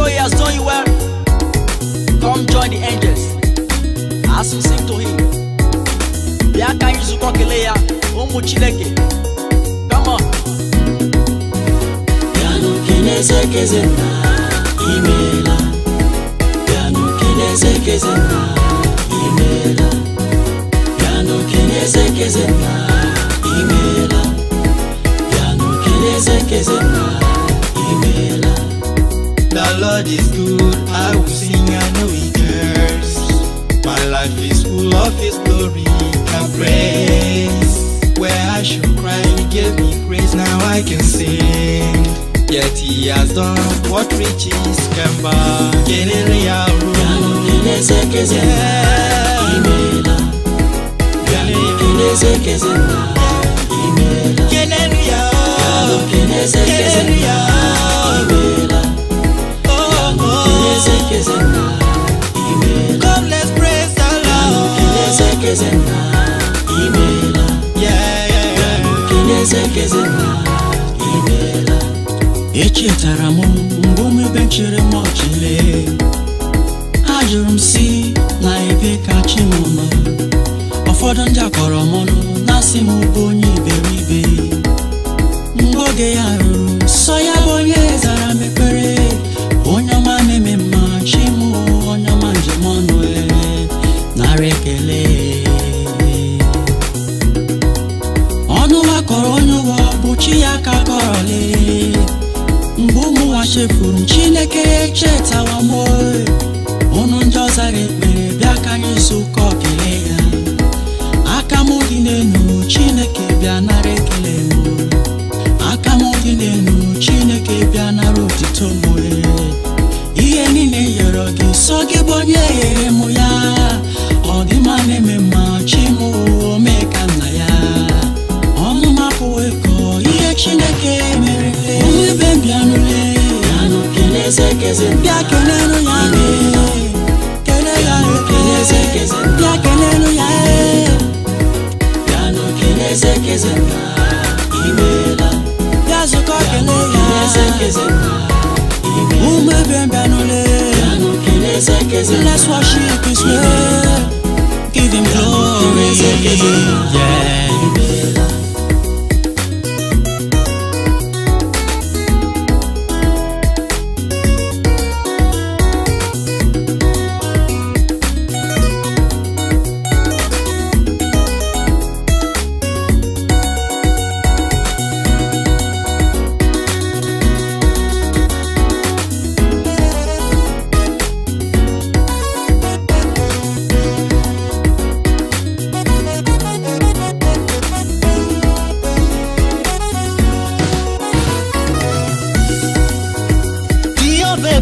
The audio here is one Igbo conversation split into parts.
know he has done you well, come join the angels as we sing to him. Come on. Bịanụ keneze keze nna imeela. Bịanụ keneze keze Yet he has done what riches can buy. Kenere ya ru. Keneze keze na imela. Keneze keze na imela. Kenere ya. Keneze keze na imela. Oh oh. Keneze keze na imela. Come let's praise the Lord. Keneze keze na imela. Yeah yeah yeah. Keneze keze na imela. echetara m mgbe omebe chere m ha ajụrụ m si na ebe ka chi m ma ụfọdụ ndị akọrọ m na-asị m bụ onye iberibe mgbe oge ya ruru sọ ya c'est Bless Give him glory.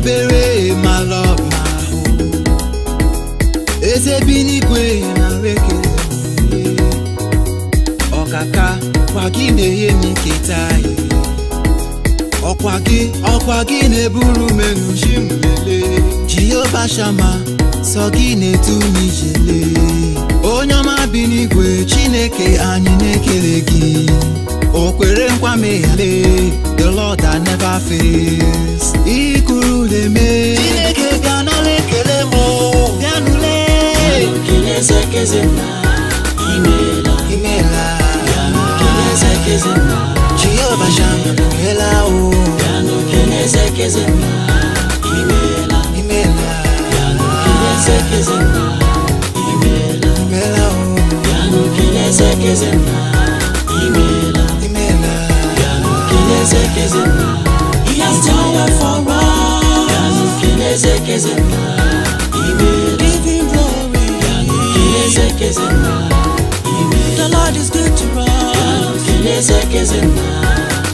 ebere ma ọba ahụ eze na n'igwe nara ekele ọkaka kwa gị na-enye m nketa anyị ọkwa gị ọkwa gị na-eburu m enuchi m lelee jehova shama sọ gị na etu m ijele onye ọma bi n'igwe chineke anyị na-ekele gị o kwere nkwa meghale the lord that never fails zeme Cine ke ganale kele mo Ganule Kine se ke zema Imela Imela Kine se ke zema Chiyo basham Kela o Ganu kine se ke zema Imela Imela Kine se ke zema Imela Imela o Ganu kine se ke zema Imela Imela Ganu kine se ke zema He has told us Keze The Lord is good to us. Keneze kezena,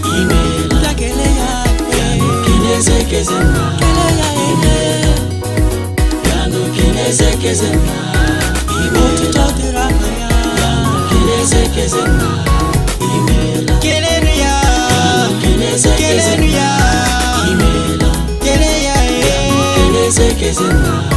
imela. Keleya, keneze kezena, keleya, imela. Yanu keneze kezena, imela. is enough.